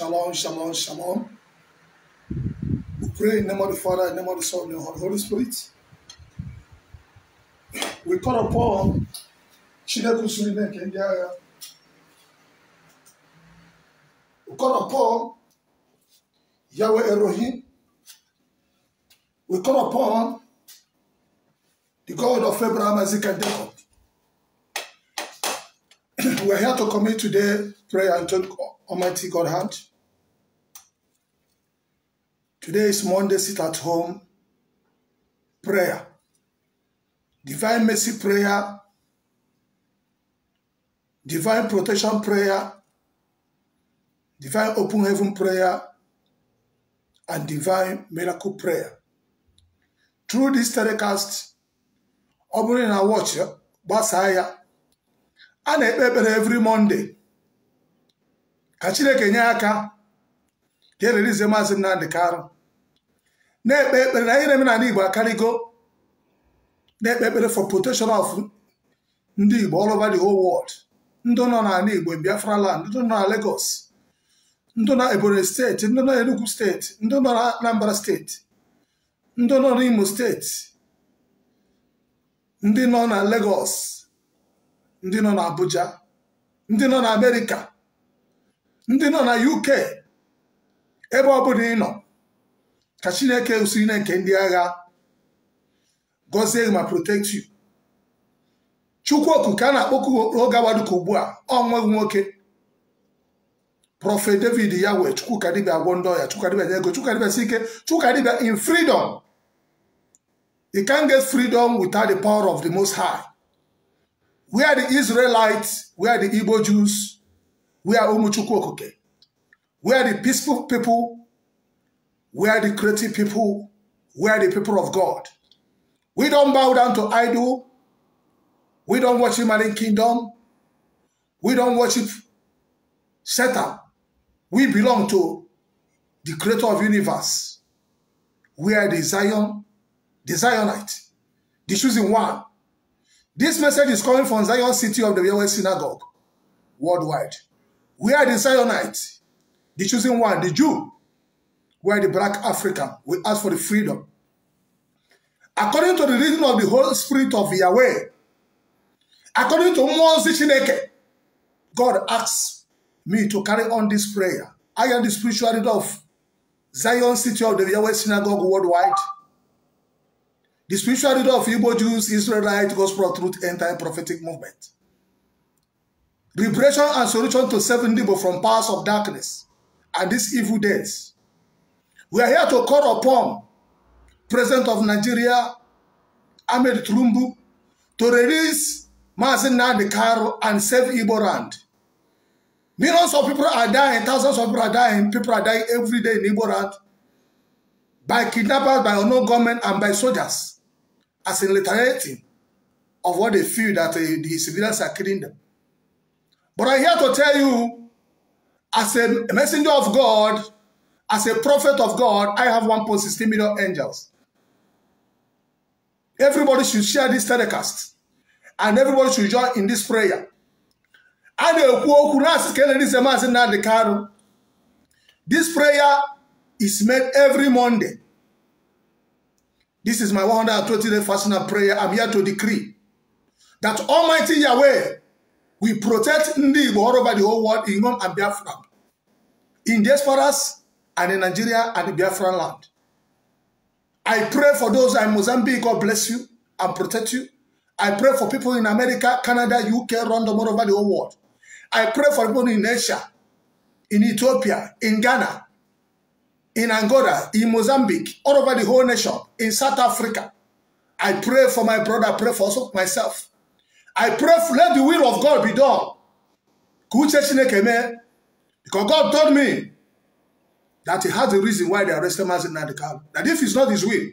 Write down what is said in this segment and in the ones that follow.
Shalom, shalom, shalom. We pray in the name of the Father, in the name of the Son, and the Holy Spirit. We call upon Chineke Surine Kenyaga. We call upon Yahweh Elohim. We call upon the God of Abraham, Isaac, and Jacob. We're here to commit today prayer and take Almighty God hand. Today is Monday, sit at home prayer. Divine mercy prayer. Divine protection prayer. Divine open heaven prayer. And divine miracle prayer. Through this telecast, ọ bụrụ na watch gbasaa eh, ya a na every Monday ka Chineke nye is ka ererize Maazị Nnamdị Karụ na-ekpe ekpere na ire omenala Igbo akarịgo na-ekpe ekpere for protection of ndị Igbo all over the whole world ndị nọ n'ala Igbo Biafra land ndị nọ na Lagos ndị nọ Ebonyi steeti ndị nọ Enugu steeti ndị nọ na Anambra steeti ndị nọ n'Imo steeti ndị nọ na Lagos ndị nọ na Abuja ndị nọ na Amerika ndị nọ na UK ebe ọ bụla ị nọ ka chineke usiri na nke ndị agha gọzie ma protect you chukwuoku ka a na-akpọku oge awaduka ugbu a ọ nweghị nwoke prọfet david ya wee chukwuka dibịa agwọ ndị ọya chukwuka dibịa nye ego chukwuka si ike chukwuka in freedom you can't get freedom without the power of the most high we are the israelites we are the igbo jews we are ụmụ chukwu okike we are the peaceful people We are the creative people We are the people of God. We don't bow down to idol. We don't worship Malian kingdom. We don't worship Satan. We belong to the creator of universe. We are the Zion, the Zionite, the chosen one. This message is coming from Zion City of the Yahweh Synagogue worldwide. We are the Zionite, the chosen one, the Jew where the black African will ask for the freedom. According to the reason of the Holy Spirit of Yahweh, according to Moses Chineke, God asks me to carry on this prayer. I am the spiritual leader of Zion City of the Yahweh Synagogue worldwide. The spiritual leader of Igbo Jews, Israelite, Gospel Truth, and Time Prophetic Movement. Liberation and solution to seven people from powers of darkness and these evil days. We are here to call upon President of Nigeria, Ahmed Tulumbu, to release Mazin Nandikaru and save Igbo Millions of people are dying, thousands of people are dying, people are dying every day in Igbo by kidnappers, by unknown government, and by soldiers as in alternative of what they feel that uh, the civilians are killing them. But I'm here to tell you, as a messenger of God, As a prophet of God, I have 1.16 million angels. Everybody should share this telecast. And everybody should join in this prayer. A This prayer is made every Monday. This is my 120-day fasting and prayer. I'm here to decree that Almighty Yahweh will protect Ndị all over the whole world in Rome and Biafra. In diasporas, and in Nigeria and the Biafran land. I pray for those in Mozambique, God bless you and protect you. I pray for people in America, Canada, UK, London, all over the whole world. I pray for people in Asia, in Ethiopia, in Ghana, in Angola, in Mozambique, all over the whole nation, in South Africa. I pray for my brother, I pray for also myself. I pray for let the will of God be done. Because God told me that he has the reason why they arrested Mazin Nadekam. That if it's not his will,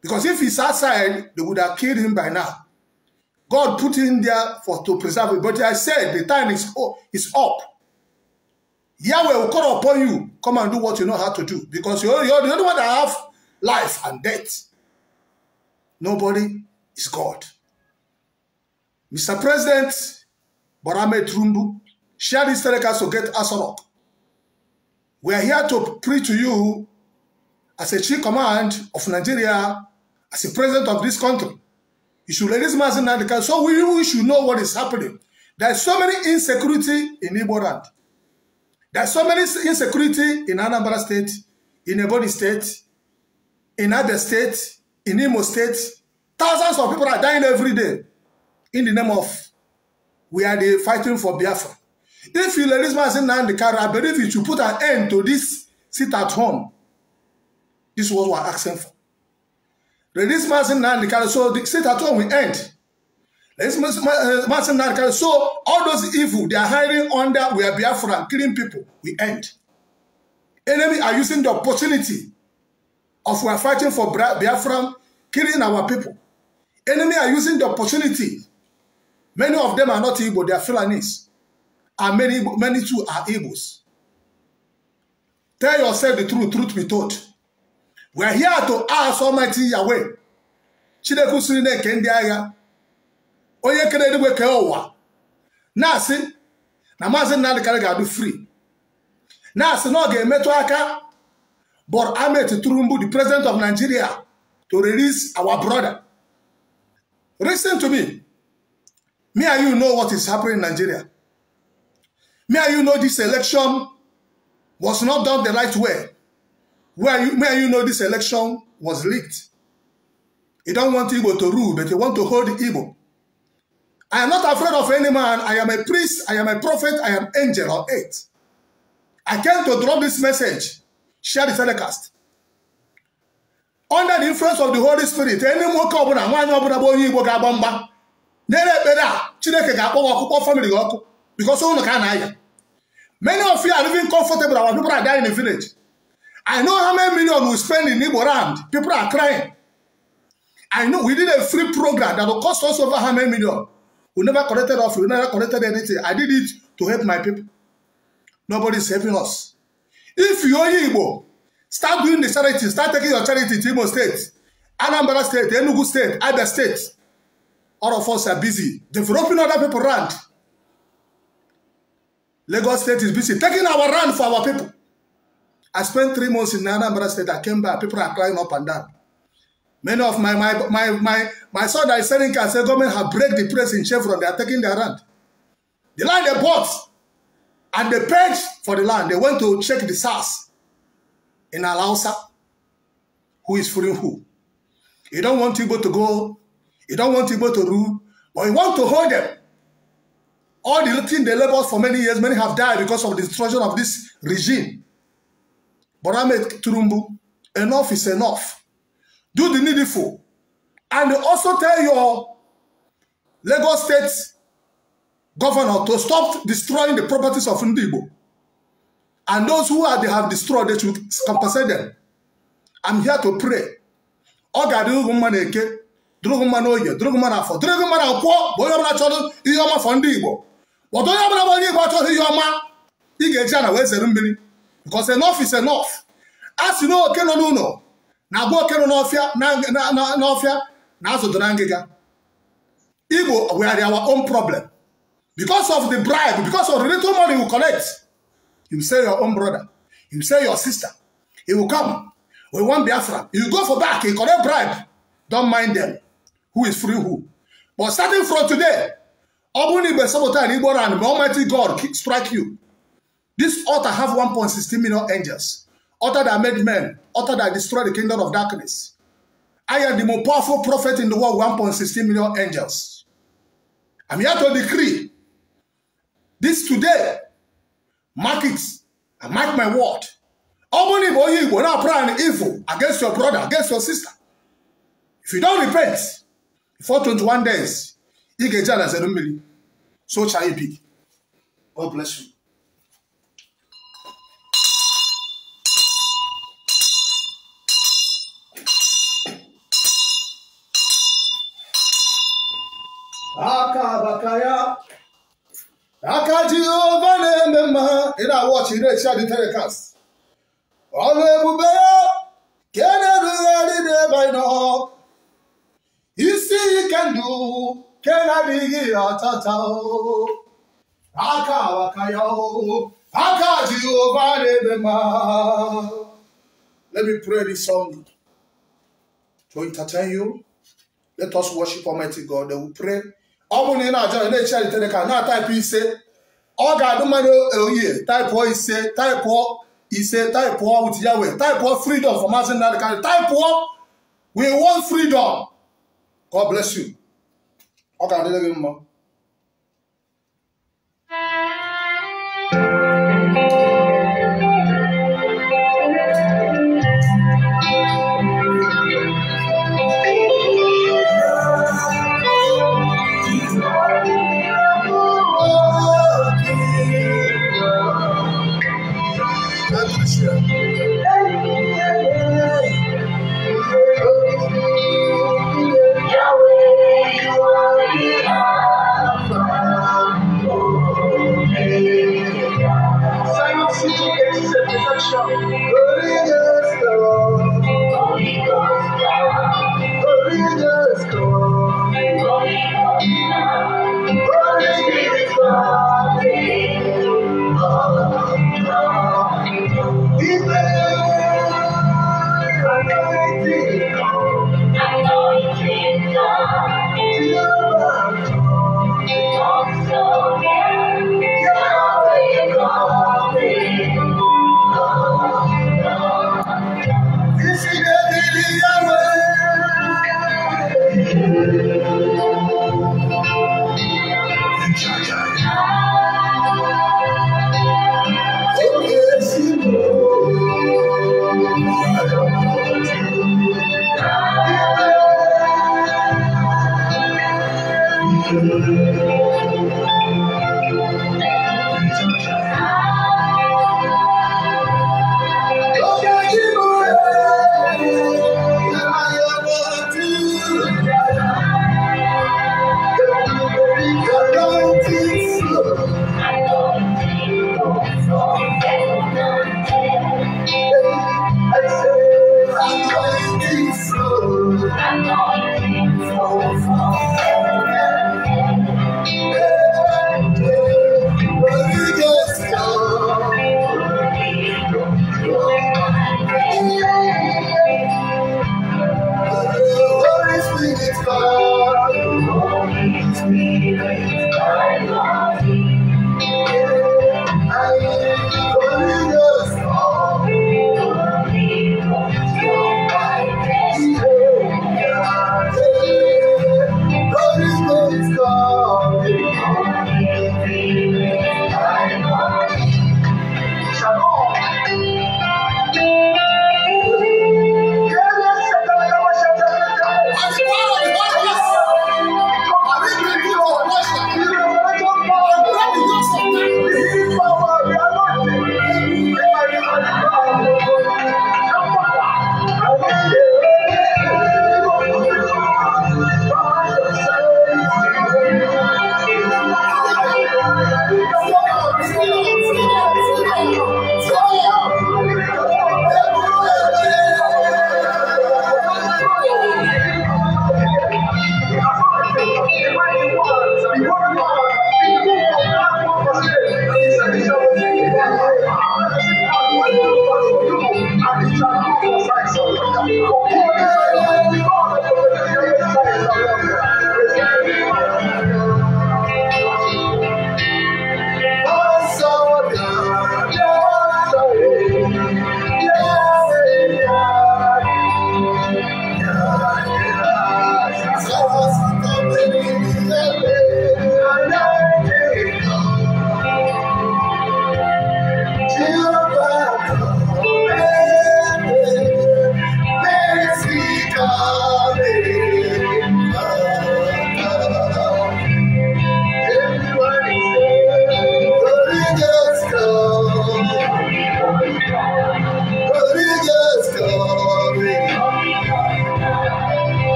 because if he's outside, they would have killed him by now. God put him there for to preserve it. But I said the time is, oh, is up. Yahweh will call upon you. Come and do what you know how to do. Because you're, you're the only one that have life and death. Nobody is God. Mr. President Barame Trumbu, share this telecast to get us up. We are here to preach to you as a chief command of Nigeria, as a president of this country. You should raise mass in Nigeria so we, should know what is happening. There is so many insecurity in Igbo There is so many insecurity in Anambra State, in Ebony State, in other State, in Imo State. Thousands of people are dying every day in the name of we are the fighting for Biafra. If you let this man say the car. I believe you should put an end to this sit at home. This is what we're asking for. Release Martin the car. so the sit at home will end. Release Martin uh, the car. so all those evil they are hiding under we are Biafra, killing people, we end. Enemy are using the opportunity of we are fighting for Biafra, killing our people. Enemy are using the opportunity. Many of them are not evil; they are Fulanis and many, many too are Igbos. Tell yourself the truth, truth be told. we are here to ask Almighty Yahweh. Chineke siri na-eke ndị agha onye kere eluigwe kee ụwa na-asị na maazị Nnamdi Kanu ga-adụ free na-asị na ọ ga-emetụ aka Bọr Ahmed Tinubu the president of Nigeria to release our brother. Listen to me. Me and you know what is happening in Nigeria. May you know this election was not done the right way. Where you, me you know this election was leaked. You don't want Igbo to rule, but you want to hold Igbo. I am not afraid of any man. I am a priest. I am a prophet. I am angel or eight. I came to drop this message. Share the telecast. Under the influence of the Holy Spirit, any nwoke ọbụla nwaanyị one bụ onye Igbo ga-agba mgba nyere ekpere a Chineke ga-akpọ gị ọkụ kpọọ famili gị ọkụ bikọsọ ụnụ ka a na-aya Many of you are living comfortable. Our people are dying in the village. I know how many million we spend in Igbo land. People are crying. I know we did a free program that will cost us over how many million. We never collected off. We never collected anything. I did it to help my people. Nobody is helping us. If you are Igbo, start doing the charity. Start taking your charity to Igbo states, Anambra State, Enugu State, Abia State. All of us are busy developing other people land. Lagos State is busy taking our land for our people. I spent three months in Anambra State. I came back. People are crying up and down. Many of my my my my, my son that is selling cars, the government have break the press in Chevron. They are taking their land. The land they bought and they paid for the land. They went to check the SARS in Alausa. Who is fooling who? You don't want people to go. You don't want people to rule. But you want to hold them All the thing they labored for many years, many have died because of the destruction of this regime. But I Ahmed Turumbu, enough is enough. Do the needful. And also tell your Lagos State governor to stop destroying the properties of Ndibo. And those who are, they have destroyed, they should compensate them. I'm here to pray. Ọ ga-adịrị ụgwụ mma na-eke, dịrị ụgwụ mma n'oge, dịrị ụgwụ mma n'afọ, dịrị ụgwụ mma na akwụkwọ bụ onye ọbụla chọrọ ihe ọma fọ ndị Igbo but onye ọbụla bụ onye igbo achọghị ihe ọma ị ga-eji ana wee zere mmiri because enough is enough a sị na oke nọ n'ụlọ na-agba oke nọ n'ọfịa na azụ na ngịga igbo we are our own problem because of the bribe because of the little money we collect you say your own brother you say your sister he will come we want biafra you go for back he collect bribe don't mind them who is free who but starting from today ọ bụrụ na igbe sabotage igbo ran ma Almighty God strike you this altar have 1.16 million angels altar that made men altar that destroyed the kingdom of darkness I am the most powerful prophet in the world 1.16 million angels I'm here to decree this today mark it I mark my word ọ bụrụ na igbo onye igbo pray an evil against your brother against your sister if you don't repent before 21 days ị ga-eji ala zere mmiri sochaa ibi God bless you. aka abaka ya aka jehova na-eme mma ị na-awọchi na-echi adị telecast ọrụ ebube ya Let me pray this song to entertain you. Let us worship Almighty God. Then we pray. Ọ na ị na-ajọ na-echi alitere ka na-ataịpụ ise ọ ga-adụ mmadụ oyiye taịpụọ ise taịpụọ ise taịpụọ with Yahweh taịpụọ freedom for mazin na dịkarị taịpụọ we want freedom God bless you. 我讲的这个嘛。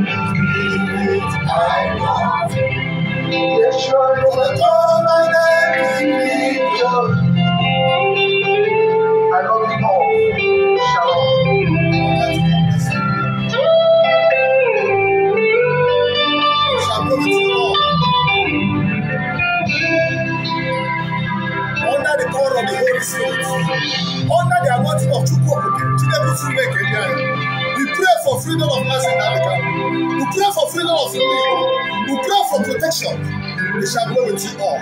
I Yes, sure. We me pray for protection, We shall go with you all.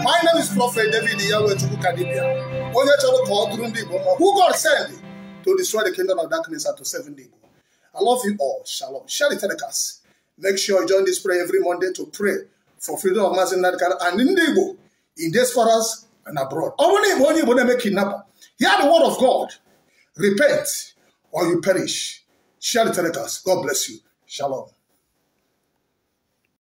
My name is Prophet David Yahweh Chukukadibia. Onye chọrọ ka ọ dụrụ who God send to destroy the kingdom of darkness and to save the Igbo. I love you all. Shalom. Share the telecast. Make sure you join this prayer every Monday to pray for freedom of mass in Nadikara and in this in diasporas and abroad. Only, when na Igbo onye Igbo na-eme kidnapper, hear the word of God. Repent or you perish. Share the telecast. God bless you. Shalom.